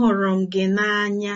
Ahụrụ m gị n'anya